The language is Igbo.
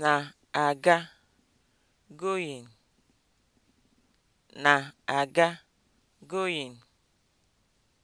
na-aga (going) na-aga (going)